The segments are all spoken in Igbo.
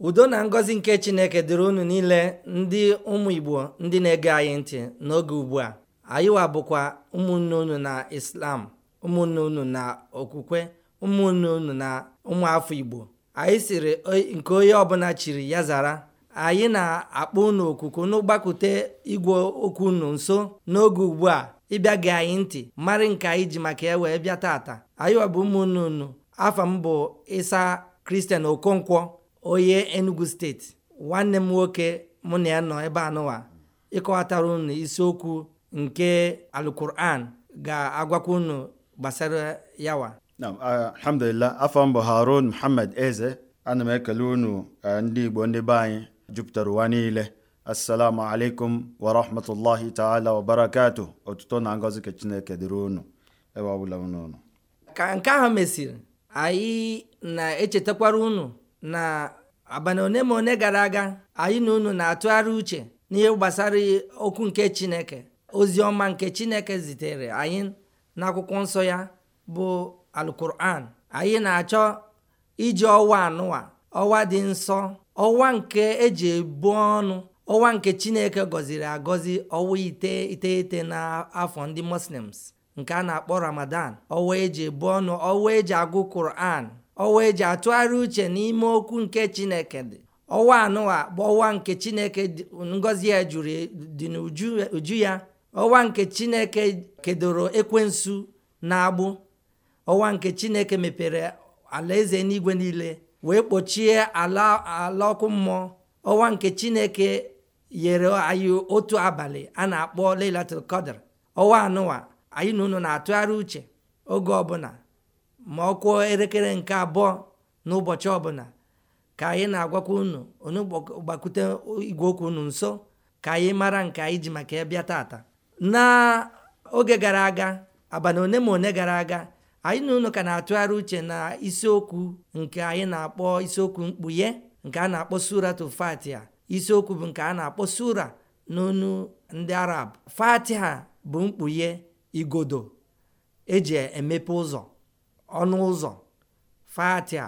udo na ngọzi nke chineke dịrị unu niile ndị ụmụ igbo ndị na-ege anyị ntị n'oge ugbu a anyịwa bụkwa ụmụnne unu na islam ụmụnne unu na okwukwe ụmụnne unu na ụmụafọ igbo anyị siri nke onye ọbụla chiri ya zara anyị na-akpọ unu okuku n'ụgbakute igwe okwu unu nso n'oge ugbu a ịbịa gị anyị ntị marị nke anyị ji maka ya wee bịa taata anyịwa bụ ụmụnne unu afa m bụ ịsa kristian okonkwo onye enugu steeti nwanne m nwoke mụ na ya nọ ebe anụwa ịkọwatara unu isiokwu nke alukuran ga-agwakwa unu gbasara yawa alhamdulillah afọ mbụ harun muhammad eze ana m ekele unu ndị igbo ndị be anyị jupụtara ụwa niile assalamu alaikum wa rahmatullahi taala wa barakatu otuto na ngozi ka chineke dịrị unu ebe ọbụla unu ka nke ahụ mesịrị anyị na-echetakwara unu na abalị one ma one gara aga anyị na unu na-atụgharị uche n'ihe gbasara okwu nke chineke ozi ọma nke chineke zitere anyị n'akwụkwọ nsọ ya bụ alkuran anyị na-achọ iji ọwa anụwa ọwa dị nsọ ọwa nke eji ebu ọnụ ọwa nke chineke gọziri agọzi ọwa ite iteghete n'afọ ndị muslims nke a na-akpọ ramadan ọwa eji ebu ọnụ ọwa eji agụ kuran wee eji atụgharị uche n'ime okwu nke chineke dị ọwa anụwa bụ ọwa nke chineke ngọzi ya jụrụ dị n'uju ya ọwa nke chineke kedoro ekwensu na agbụ ọwa nke chineke mepere alaeze n'igwe niile wee kpochie ala ọkụ mmụọ ọwa nke chineke yere anyị otu abalị a na-akpọ lailatul ọwa anụwa anyị na unu na-atụgharị uche oge ọbụla ma ọ kụọ elekere nke abụọ n'ụbọchị ọbụla ka anyị na-agwakwa unu onye gbakwute igwe okwu unu nso ka anyị mara nke anyị ji maka ya tata n'oge gara aga abalị one ma one gara aga anyị na unu ka na-atụgharị uche na isiokwu nke anyị na-akpọ isiokwu mkpughe nke a na-akpọ suratu fatiha isiokwu bụ nke a na-akpọ sura n'onu ndị arab ha bụ mkpughe igodo eji emepe ụzọ ọnụ ụzọ fatia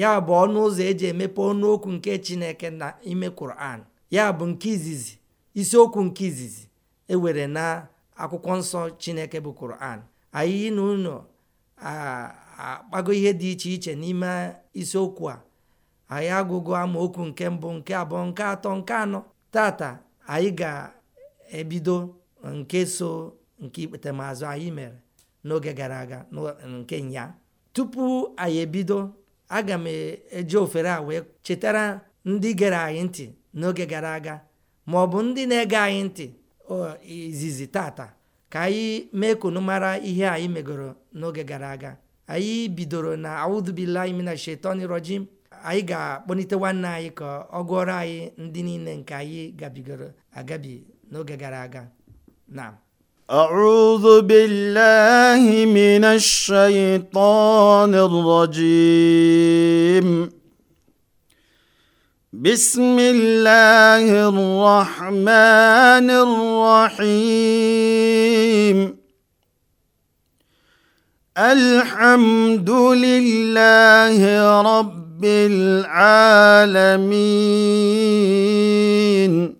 ya bụ ọnụ ụzọ eji emepe ọnụokwu nke chineke na ime kuran ya bụ nke izizi isiokwu nke izizi ewere na akwụkwọ nsọ chineke bụ kuran anyị na ụlọ akpago ihe dị iche iche n'ime isiokwu a anyị agụgo amaokwu nke mbụ nke abụọ nke atọ nke anọ tata anyị ga-ebido nke so nke ikpetemaazụ anyị mere n'oge gara aga nke nya tupu anyị ebido aga m eji ofere a wee chetara ndị gere anyị ntị n'oge gara aga ma ọ bụ ndị na-ege anyị ntị izizi tata ka anyị mee kunu mara ihe anyị megoro n'oge gara aga anyị bidoro na audubillahi mina shetani rojim anyị ga-akpọlite nwanne anyị ka ọ gụọrọ anyị ndị niile nke anyị gabigoro agabi n'oge gara aga na ir-rajim. auzubilhimin shayitonjam bismila hịrahmanịrahm alhamdulilehirọblaramin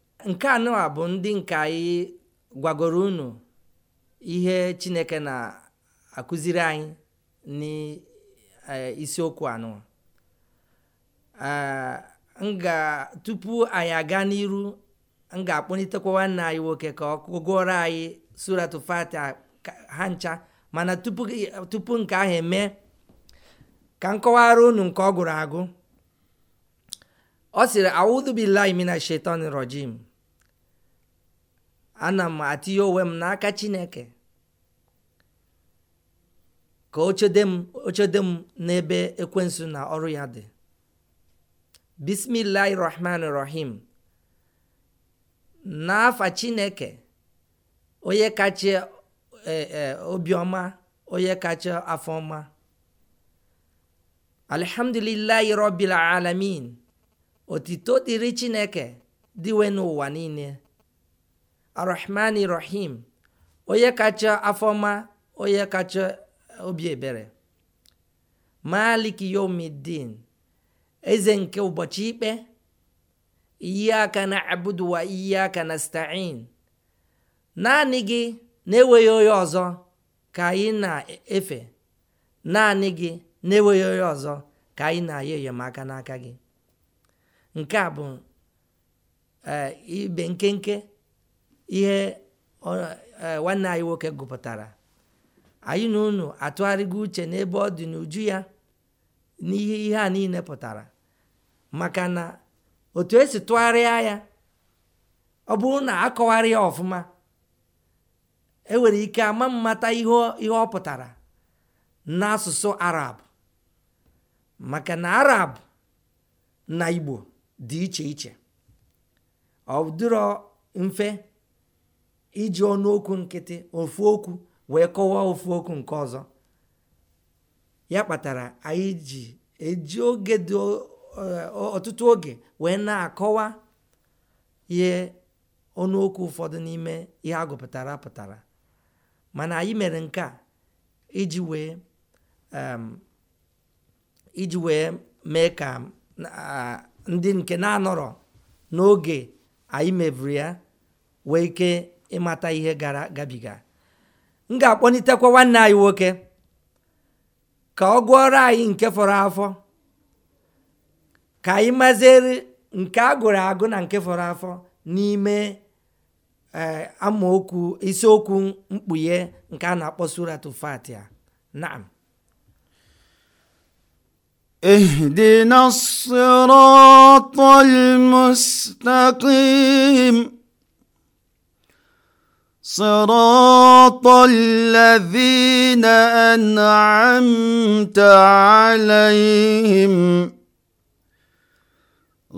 nke anụwa bụ ndị nke anyị gwagoro unu ihe chineke na-akụziri anyị n'isiokwu anụwa nga tupu anyị aga n'iru m ga-akpọlitekwa nwanne anyị nwoke ka ọ gụọrọ anyị suratu fatiha ha ncha mana tupu nke ahụ eme ka m kọwara unu nke ọ gụrụ agụ ọ sịrị audu mina shaitan rajim ana m atinye onwe m n'aka chineke ka o m m n'ebe ekwensu na ọrụ ya dị bismillahi rahman rahim n'afa chineke onye kacha e, e, obiọma onye kacha afọma alhamdulillahi rabbil alamin otito dịrị chineke dịwe n'ụwa niile arahmani rahim onye kacha afọma onye kacha eh, obi ebere malik yomidin eze nke ụbọchị ikpe aka na abudu iyi aka na stain naanị gị na-enweghị onye ọzọ ka anyị na-efe naanị gị na-enweghị onye ọzọ ka anyị na aya enyemaka n'aka gị nke a bụ eh, ibe nkenke ihe e, nwanne anyị nwoke gụpụtara anyị na unu atụgharịgo uche n'ebe ọ dị n'uju ya n'ihe ihe a niile pụtara maka na otu esi tụgharịa ya ọ bụrụ na akọwarị ya ọfụma enwere ike ama mmata ihe ọ pụtara n'asụsụ arab maka na arab na igbo dị iche iche ọ dịrọ mfe iji ọnụokwu nkịtị ofu okwu wee kọwaa ofu okwu nke ọzọ ya kpatara anyị ji eji oge dị eh, ọtụtụ oge wee na-akọwa ihe ọnụokwu ụfọdụ n'ime ihe a pụtara mana anyị mere nke a iji wee iji wee mee ka eh, ndị nke na-anọrọ n'oge anyị mebiri ya wee ike ịmata ihe gara gabiga m ga-akpọlitekwa nwanne anyị nwoke ka ọ gụọrọ anyị nke fọrọ afọ ka anyị maziri nke a gụrụ agụ na nke fọrọ afọ n'ime e, amaokwu isiokwu mkpughe nke a na-akpọ surat fatia naam اهدنا sorọtọlevina ena emta aleehim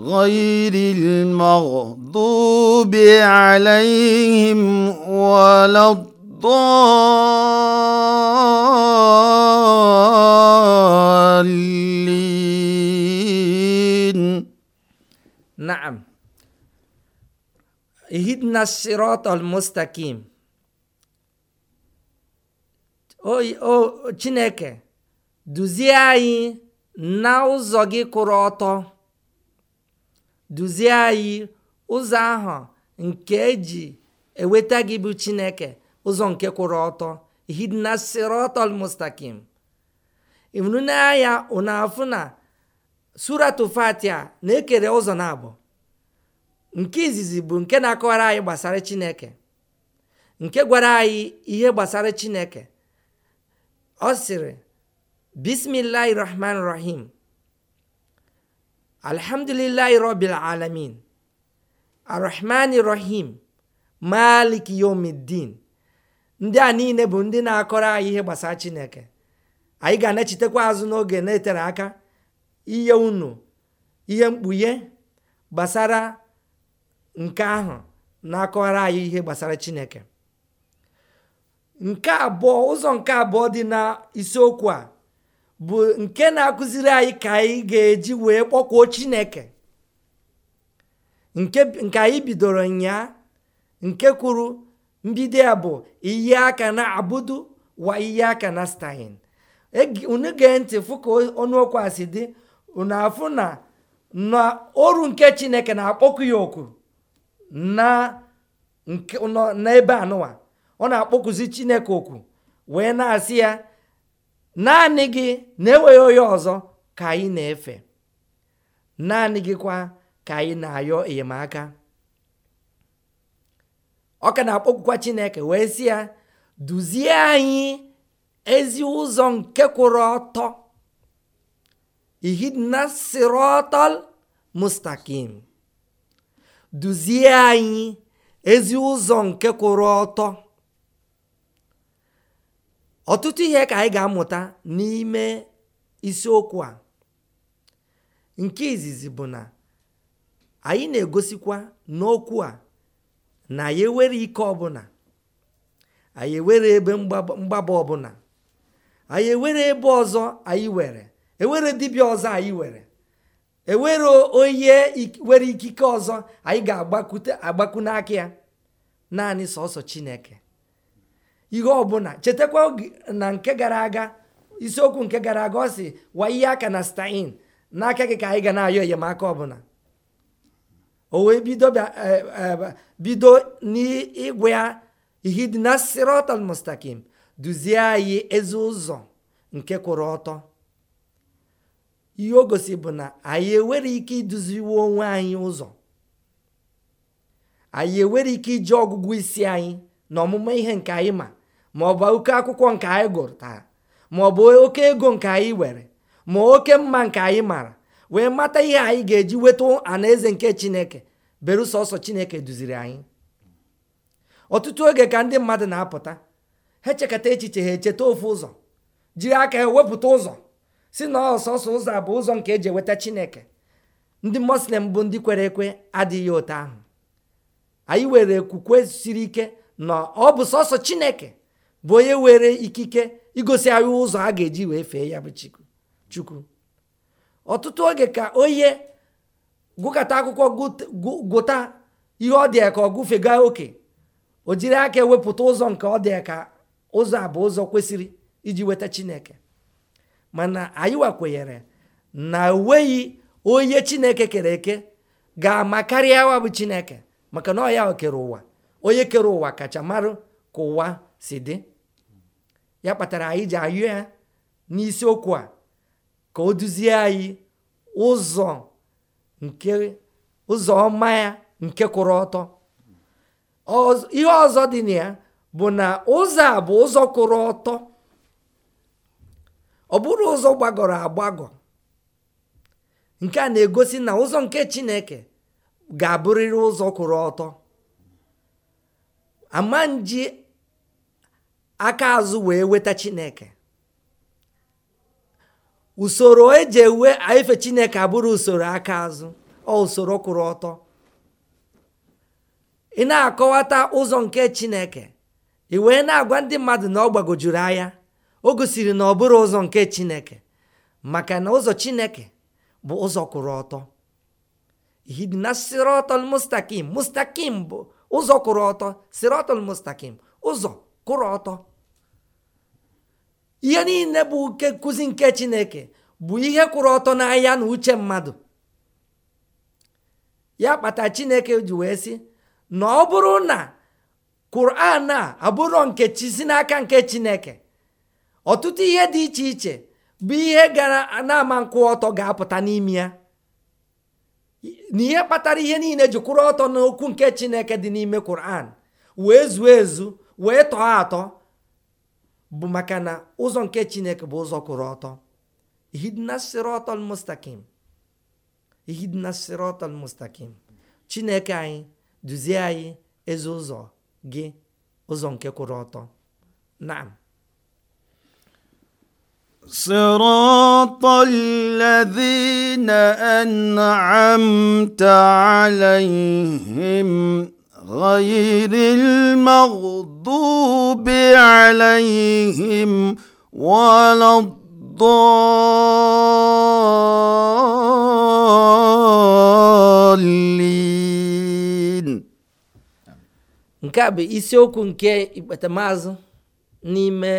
họyirirmaụ dụbe alayehi m weledụụiliin nam اهدنا الصراط المستقيم o chineke duzie anyị na ụzọ gị kwụrụ ọtọ duzie anyị ụzọ ahụ nke eji eweta gị bụ chineke ụzọ nke kwụrụ ọtọ hidna sirotol mustakim ịhụrụ n'anya ụnafụ na suratul fatia na-ekere ụzọ na abụọ nke izizi bụ nke na-akọwara anyị gbasara chineke nke gwara anyị ihe gbasara chineke ọ sịrị bismillahi rahman rahim alhamdulillahi rabbil alamin arrahmani rahim maliki yomiddin ndị a niile bụ ndị na-akọrọ anyị ihe gbasara chineke anyị ga-anachitekwa azụ n'oge na-etere aka ihe unu ihe mkpughe gbasara nke ahụ na-akọwara anyị ihe gbasara chineke nke abụọ ụzọ nke abụọ dị na isiokwu a bụ nke na-akụziri anyị ka anyị ga-eji wee kpọkwuo chineke nke anyị bidoro nyaa nke kwuru mbido ya bụ iyi aka na Abudu wa iyi aka na stain unu gee ntị fụ ka ọnụokwu a si dị unu afụ na na oru nke chineke na-akpọkụ ya oku na nke n'ebe anụwa ọ na-akpọkuzi chineke okwu wee na-asị ya naanị gị na-enweghị onye ọzọ ka anyị na-efe naanị gị kwa ka anyị na-ayọ enyemaka ọ ka na-akpọkwukwa chineke wee sị ya duzie anyị ezi ụzọ nke kwụrụ ọtọ ihidna sirotol mustakim duzie anyị ezi ụzọ nke kwụrụ ọtọ ọtụtụ ihe ka anyị ga-amụta n'ime isiokwu a nke izizi bụ na anyị na-egosikwa n'okwu a na anyị ewere ike ọbụla anyị ewere ebe mgbaba ọbụla anyị ewere ebe ọzọ anyị were ewere dibịa ọzọ anyị were ewere onye nwere ikike ọzọ anyị ga-agbakwute agbakwu n'aka ya naanị sọsọ chineke ihe ọbụla chetakwa na nke gara aga isiokwu nke gara aga ọ si wa aka na stain n'aka gị ka anyị ga na-ayọ enyemaka ọbụla o wee bido e, e, n'ịgwa ya na sirọtal mustakim duzie anyị ezi ụzọ nke kwụrụ ọtọ ihe o gosi bụ na anyị enwere ike iduziwe onwe anyị ụzọ anyị enwere ike iji ọgụgụ isi anyị na ọmụma ihe nke anyị ma ma ọ bụ oke akwụkwọ nke anyị gụrụ taa ma ọ bụ oke ego nke anyị were ma oke mma nke anyị mara wee mata ihe anyị ga-eji weta anaeze nke chineke berụsọ ọsọ chineke duziri anyị ọtụtụ oge ka ndị mmadụ na-apụta ha echekata echiche ha echeta ofu ụzọ jiri aka ha wepụta ụzọ si na ọsọsọ ụzọ a bụ ụzọ nke eji eweta chineke ndị muslim bụ ndị kwere ekwe adịghị otu ahụ anyị were okwukwe siri ike na ọ bụ sọsọ chineke bụ onye were ikike igosi anyị ụzọ a ga-eji wee fee ya bụ chukwu ọtụtụ oge ka onye gụkọta akwụkwọ gụta ihe ọ dị ka ọ gụfega oke o jiri aka ewepụta ụzọ nke ọ ka ụzọ a bụ ụzọ kwesịrị iji weta chineke mana anyị wakwenyere na enweghị onye chineke kere eke ga-ama karịa awa bụ chineke maka na ọ ya kere ụwa onye kere ụwa kacha marụ ka ụwa si dị ya kpatara anyị ji ayụ ya n'isiokwu a ka o duzie anyị ụzọ nke ụzọ ọma ya nke kwụrụ ọtọ ihe ọzọ dị na ya bụ na ụzọ a bụ ụzọ kwụrụ ọtọ ọ bụrụ ụzọ gbagọrọ agbagọ nke a na-egosi na ụzọ nke chineke ga-abụrịrị ụzọ kwụrụ ọtọ ama nji aka azụ wee weta chineke usoro eji ewe ife chineke abụrụ usoro aka azụ ọ usoro kwụrụ ọtọ ị na-akọwata ụzọ nke chineke ị wee na-agwa ndị mmadụ na ọ gbagojuru anya o gosiri na ọ bụrụ ụzọ nke chineke maka na ụzọ chineke bụ ụzọ kwụrụ ọtọ hidina sirotol mustakim mustakim bụ ụzọ kwụrụ ọtọ sirotol mustakim ụzọ kwụrụ ọtọ ihe niile bụ nke nkụzi nke chineke bụ ihe kwụrụ ọtọ n'anya na uche mmadụ ya kpata chineke ji wee sị na ọ bụrụ na kuran a abụrụ nke chi si n'aka nke chineke ọtụtụ ihe dị iche iche bụ ihe gara na-ama nkwụ ọtọ ga-apụta n'ime ya na ihe kpatara ihe niile ji kwụrụ ọtọ n'okwu nke chineke dị n'ime Quran wee zuo ezu wee tọọ atọ bụ maka na ụzọ nke chineke bụ ụzọ kwụrụ ọtọ ihidina mustakim chineke anyị duzie anyị ezi ụzọ gị ụzọ nke kwụrụ ọtọ Na. na-anaghị na-adịghị ma sirụtọlilezina ena etaalai hayirimaụdubi alahihem waladụlili nke a bụ isiokwu nke ikpetamazụ n'ime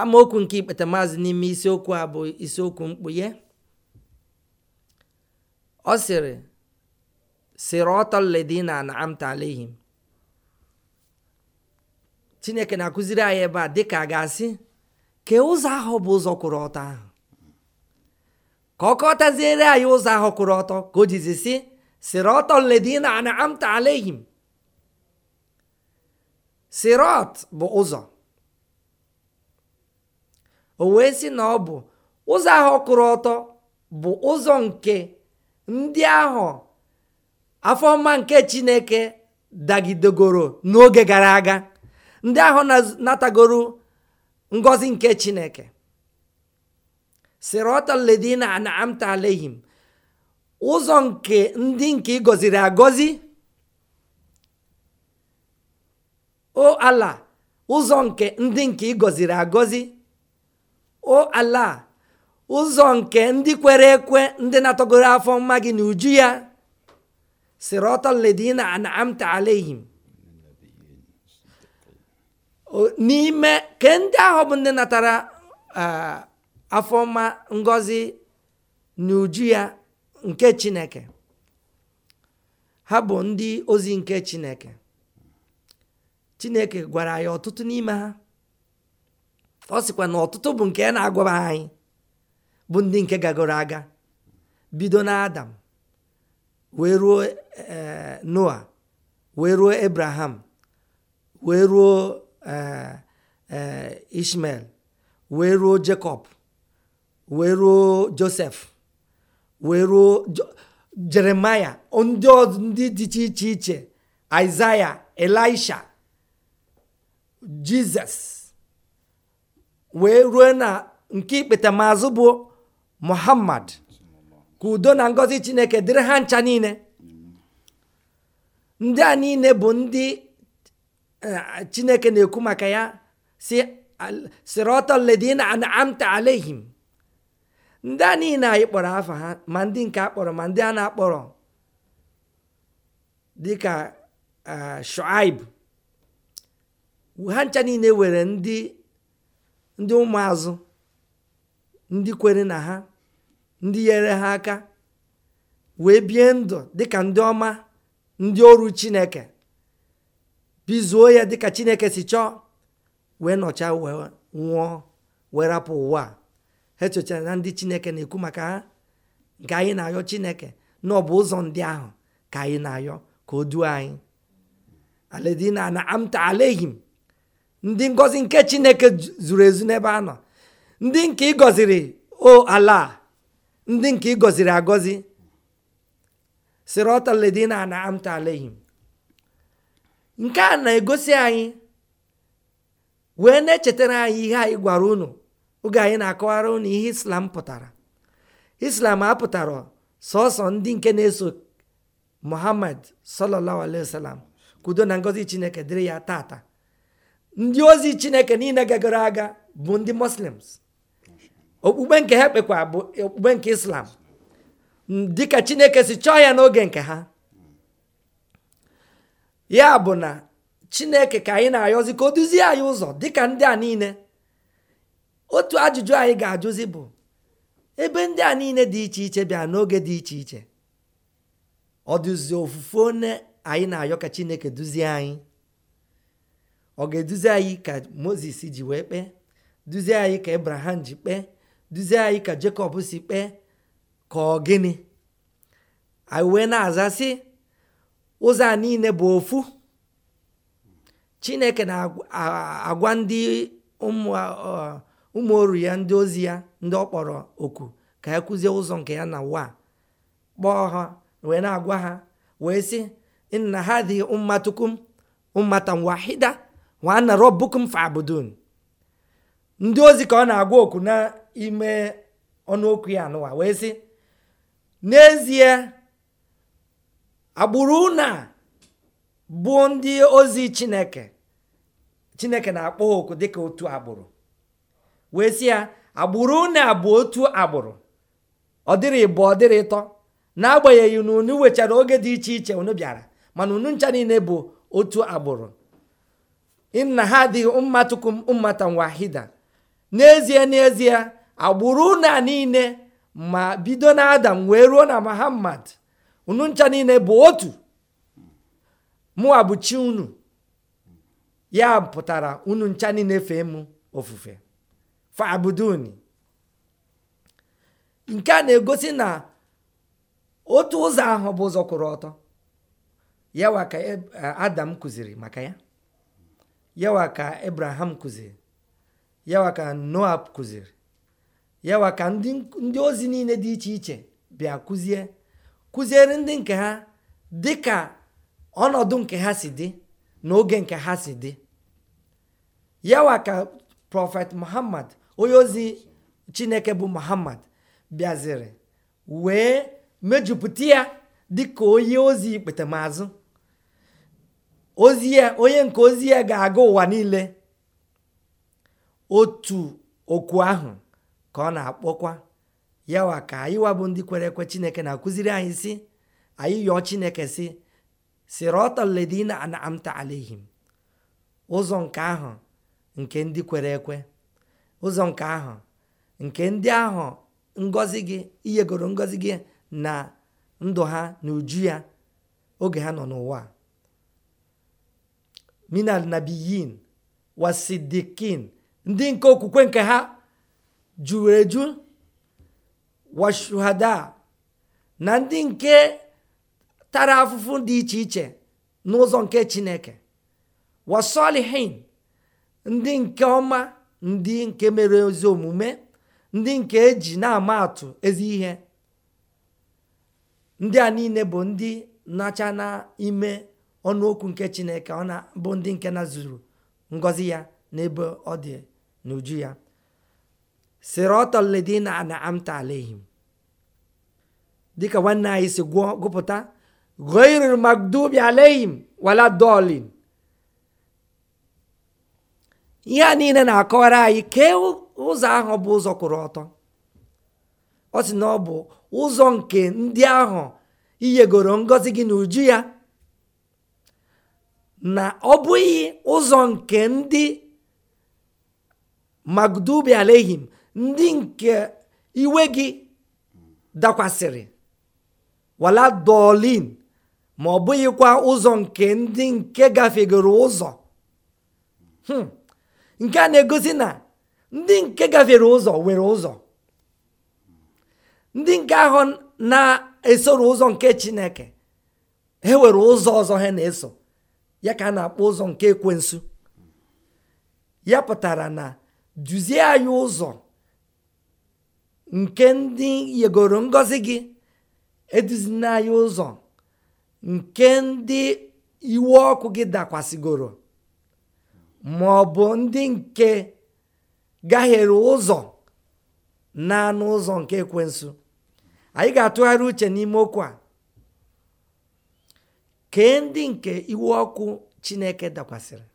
amaokwu nke ikpeta maazị n'ime isiokwu a bụ isiokwu mkpughe ọ sịrị sirotoledina na amtalehim chineke na-akụziri anyị ebe a dịka a ga-asị ka ụzọ ahụ bụ ụzọ kwụrụ ọtọ ahụ ka ọ anyị ụzọ ahụ kwụrụ ọtọ ka o jizi si sirotoledina na sirot bụ ụzọ o wee sị na ọ bụ ụzọ ahụ ọkụrụ ọtọ bụ ụzọ nke ndị ahụ afọma nke chineke dagidegoro n'oge gara aga ndị ahụ natagoro ngọzi nke chineke sirota ledina alehim ụzọ nke ndị nke ị gọziri o ala ụzọ nke ndị nke ị gọziri agọzi o ala ụzọ nke ndị kwere ekwe ndị na-atọgoro afọ mma gị na uju ya sirotaledina anamta alehim n'ime ka ndị ahụ bụ ndị natara afọ mma ngozi n'uju ya nke chineke ha bụ ndị ozi nke chineke chineke gwara ya ọtụtụ n'ime ha ọ sịkwa na ọtụtụ bụ nke na agwaba anyị bụ ndị nke gagoro aga bido na adam wee ruo eh, noa wee ruo abraham wee ruo eh, eh, ishmael wee ruo jacob wee ruo joseph wee ruo jeremaya ndị ndị dị iche iche isaiah elisha jizọs wee ruo na nke ikpete maazụ bụ muhammad ka udo na ngọzi chineke dịrị ha ncha niile ndị a niile bụ ndị e, chineke na-ekwu maka ya si sirotaledina amta alehim ndị a niile anyị kpọrọ afa ha ma ndị nke a kpọrọ ma ndị a na-akpọrọ dịka e, shuaib ha ncha niile were ndị ndị ụmụazụ ndị kwere na ha ndị nyere ha aka wee bie ndụ dịka ndị ọma ndị ọrụ chineke bizuo ya dịka chineke si chọọ wee nọcha wee nwụọ wee rapụ ụwa ha echochara na ndị chineke na-ekwu maka ha nke anyị na-ayọ chineke na ọ bụ ụzọ ndị ahụ ka anyị na-ayọ ka o duo anyị aledina amta alehim ndị ngọzi nke chineke zuru ezu n'ebe a nọ ndị nke ịgọziri o ala ndị nke ịgọziri agọzi sirọtaledina na amta nke a na-egosi anyị wee na-echetara anyị ihe anyị gwara unu oge anyị na-akọwara unu ihe islam pụtara islam apụtara sọsọ ndị nke na-eso muhammad sallallahu alaihi kudo na ngọzi chineke dịrị ya tata ndị ozi chineke niile gagoro aga bụ ndị muslims okpukpe nke ha kpekwa bụ okpukpe nke islam dịka chineke si chọọ ya n'oge nke ha ya bụ na chineke ka anyị na-ayọzi ka o duzie anyị ụzọ dịka ndị a niile otu ajụjụ anyị ga-ajụzi bụ ebe ndị a niile dị iche iche bịa n'oge dị iche iche ọ ofufe one anyị na-ayọ ka chineke duzie anyị ọ ga-eduzi anyị ka moses ji wee kpee duzie anyị ka abraham ji kpee duzie anyị ka jekọb si kpee ka ọ gịnị anyị wee na-aza ụzọ a niile bụ ofu chineke na-agwa ndị ụmụ oru ya ndị ozi ya ndị ọ kpọrọ oku ka ya kụzie ụzọ nke ya na waa kpọọ ha wee na-agwa ha wee sị nna ha dị mmatukum mmata wahida nwanna robukum fabudun ndị ozi ka ọ na-agwa okwu n'ime ọnụokwu ya anụwa wee sị n'ezie agbụrụ na bụ ndị ozi chineke chineke na-akpọ ha oku dịka otu agbụrụ wee sị ya agbụrụ na bụ otu agbụrụ ọ dịrị ịbụ ọ dịrị ịtọ n'agbanyeghị na unu wechara oge dị iche iche unu bịara mana unu ncha niile bụ otu agbụrụ inna hadhihi ummatukum ummatan wahida n'ezie n'ezie agbụrụ a niile ma bido na adam wee ruo na muhammad unu ncha niile bụ otu mụwa unu ya pụtara unu ncha niile fee m ofufe fabuduni nke a na-egosi na otu ụzọ ahụ bụ ụzọ kwụrụ ọtọ yawa ka e, adam kụziri maka ya yawa ka Abraham kụziri yawa ka kuziri kụziri yawa ndị ozi niile dị iche iche bịa kụzie kụziere ndị nke ha dị ka ọnọdụ nke ha si dị na oge nke ha si dị yawa ka prọfet muhammad onye ozi chineke bụ muhammad bịaziri wee mejupụta ya dịka onye ozi ikpetemazụ ozi ya e, onye nke ozi ya e ga-aga ụwa niile otu okwu ahụ ka ọ na-akpọkwa yawa ka anyịwa bụ ndị kwere ekwe chineke na-akụziri anyị si anyị yọọ chineke si sirọtaledina anamta alehim ụzọ nke ahụ nke ndị kwere ekwe ụzọ nke ahụ nke ndị ahụ ngọzi gị iyegoro ngọzi gị na ndụ ha na uju ya oge ha nọ n'ụwa minal wa wasidikin ndị nke okwukwe nke ha juru eju na ndị nke tara afụfụ dị iche iche n'ụzọ nke chineke wasolihin ndị nke ọma ndị nke mere ezi omume ndị nke eji na-ama atụ ezi ihe ndị a niile bụ ndị nacha n'ime ọnụokwu nke chineke ọ na bụ ndị nke na zuru ngọzi ya n'ebe ọ dị n'uju ya siratọledina na amta alehim dịka nwanne anyị si gwụọ gụpụta goiril magdubi alehim wala dolin ihe a niile na-akọwara anyị kee ụzọ ahụ bụ ụzọ kwụrụ ọtọ ọ sị na ọ bụ ụzọ nke ndị ahụ iyegoro ngọzi gị n'uju ya na ọ bụghị ụzọ nke ndị magdubi alehim ndị nke iwe gị dakwasịrị wala dolin ma ọ bụghịkwa ụzọ nke ndị nke gafegoro ụzọ hmm. nke a na-egosi na ndị nke gafere ụzọ nwere ụzọ ndị nke ahụ na-esoro ụzọ nke chineke ha were ụzọ ọzọ ha na-eso ya ka a na-akpọ ụzọ nke ekwensu ya pụtara na duzie anyị ụzọ nke ndị yegoro ngọzi gị eduzina anyị ụzọ nke ndị iwe ọkụ gị dakwasịgoro ma ọ bụ ndị nke gaghere ụzọ na anụ ụzọ nke ekwensụ anyị ga-atụgharị uche n'ime okwu a kee ndị nke iwe ọkụ chineke dakwasịrị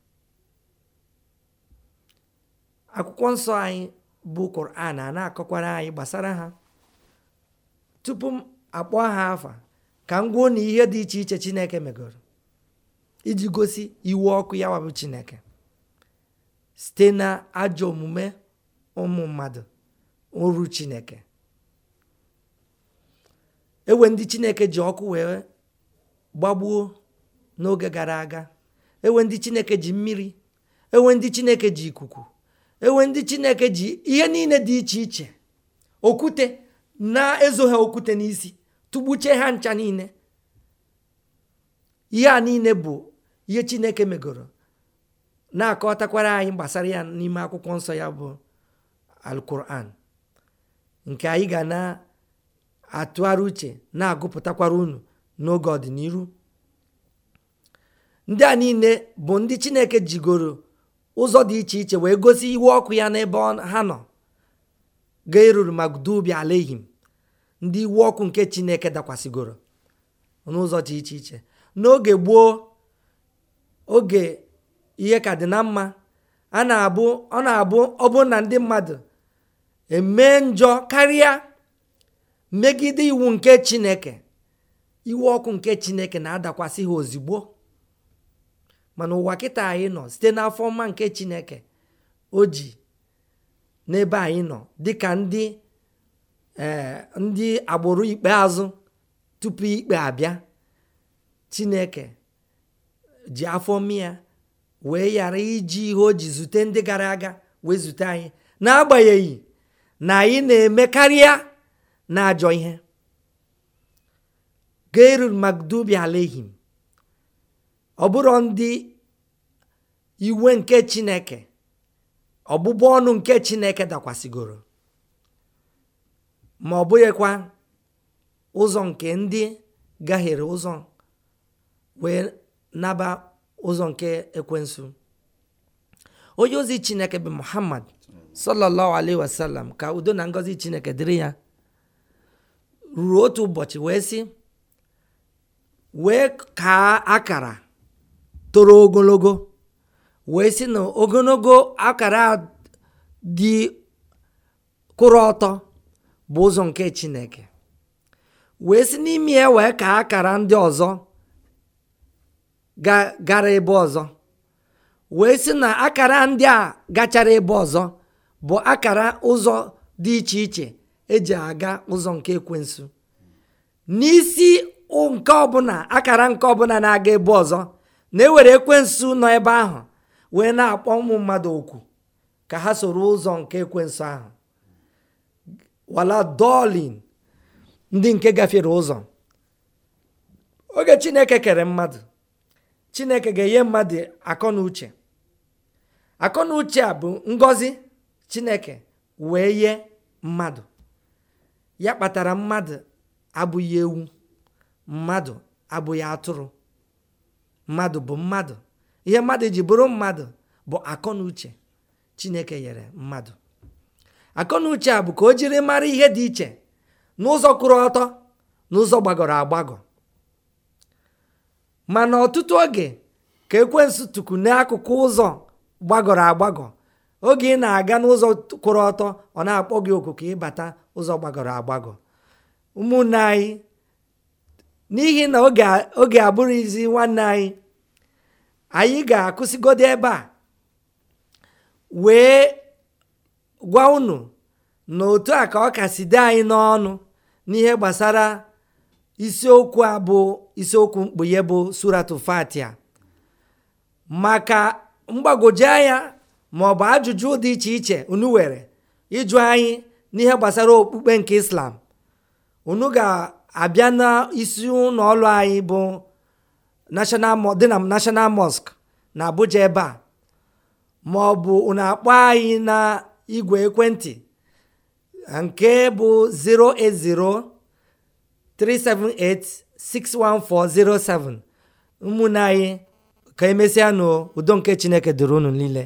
akwụkwọ nsọ anyị bụ koran a na-akọkwara anyị gbasara ha tupu m akpọ ha afa ka m gwuo na ihe dị iche iche chineke megoro iji gosi iwe ọkụ ya wabụ chineke site na ajọ omume ụmụ mmadụ oru chineke enwe ndị chineke ji ọkụ wee gbagbuo n'oge gara aga ewe ndị chineke ji mmiri ewe ndị chineke ji ikuku ewe ndị chineke ji ihe niile dị iche iche okwute na-ezo okwute n'isi tụgbuchie ha ncha niile ihe a niile bụ ihe chineke megoro na-akọtakwara anyị gbasara ya n'ime akwụkwọ nsọ ya bụ alkuran nke anyị ga na-atụgharị uche na-agụpụtakwara unu n'oge ọdịnihu ndị a niile bụ ndị chineke jigoro ụzọ dị iche iche wee gosi iwu ọkụ ya n'ebe ha nọ ga-eruru ma ala alehim ndị iwu ọkụ nke chineke dakwasịgoro n'ụzọ dị iche iche n'oge gboo oge ihe ka dị na mma a na-abụ ọ na-abụ ọbụ na ndị mmadụ emee njọ karịa megide iwu nke chineke iwe ọkụ nke chineke na-adakwasị ha ozugbo mana ụwa kịta anyị nọ site n'afọ mma nke chineke o ji n'ebe anyị nọ dịka ndị eh, ndị agbụrụ ikpeazụ tupu ikpe abịa chineke ji afọ mia wee ghara iji ihe o ji zute ndị gara aga wee zute anyị n'agbanyeghị na anyị na-eme karịa na ajọ ihe gairul magdubi alehim ọ bụrụ ndị iwe nke chineke ọbụbụ ọnụ nke chineke dakwasịgoro ma ọ bụghịkwa ụzọ nke ndị gaghịrị ụzọ wee naba ụzọ nke ekwensu onye ozi chineke bụ muhammad sallallahu alaihi ka udo na ngọzi chineke dịrị ya ruo otu ụbọchị wee sị wee kaa akara toro ogologo wee sị na ogologo akara dị kwụrụ ọtọ bụ ụzọ nke chineke wee si n'ime ya wee kaa akara ndị ọzọ gara ebe ọzọ wee si na akara ndị a gachara ebe ọzọ bụ akara ụzọ dị iche iche eji aga ụzọ nke ekwensu n'isi nke ọbụla akara nke ọbụla na-aga ebe ọzọ na-ewere ekwensu nọ ebe ahụ wee na-akpọ ụmụ mmadụ okwu ka ha soro ụzọ nke ekwensu ahụ wala dolin ndị nke gafere ụzọ oge chineke kere mmadụ chineke ga-enye mmadụ akọ na uche a bụ ngọzi chineke wee nye mmadụ ya kpatara mmadụ abụghị ewu mmadụ abụghị atụrụ mmadụ bụ mmadụ ihe mmadụ ji bụrụ mmadụ bụ akọnuche chineke nyere mmadụ akọ a bụ ka o jiri mara ihe dị iche n'ụzọ kwụrụ ọtọ n'ụzọ gbagọrọ agbagọ mana ọtụtụ oge ka ekwensu tuku n'akụkụ ụzọ gbagọrọ agbagọ oge ị na-aga n'ụzọ kwụrụ ọtọ ọ na-akpọ gị oku ka ịbata ụzọ gbagọrọ agbagọ ụmụnne anyị n'ihi na oge abụrụzi nwanne anyị anyị ga-akwụsịgodo ebe a wee gwa unu na otu a ka ọ kasị dị anyị n'ọnụ n'ihe gbasara isiokwu a bụ isiokwu mkpughe bụ suratu fatia maka mgbagwoju anya ma ọ bụ ajụjụ dị iche iche unu were ịjụ anyị n'ihe gbasara okpukpe nke islam unu ga abịa n'isi isi anyị bụ dị na national mosque na abuja ebe a ma ọ bụ unu akpọ anyị na igwe ekwentị nke bụ 08037861407 ụmụnne anyị ka emesịa n'udo nke chineke dịrị unu niile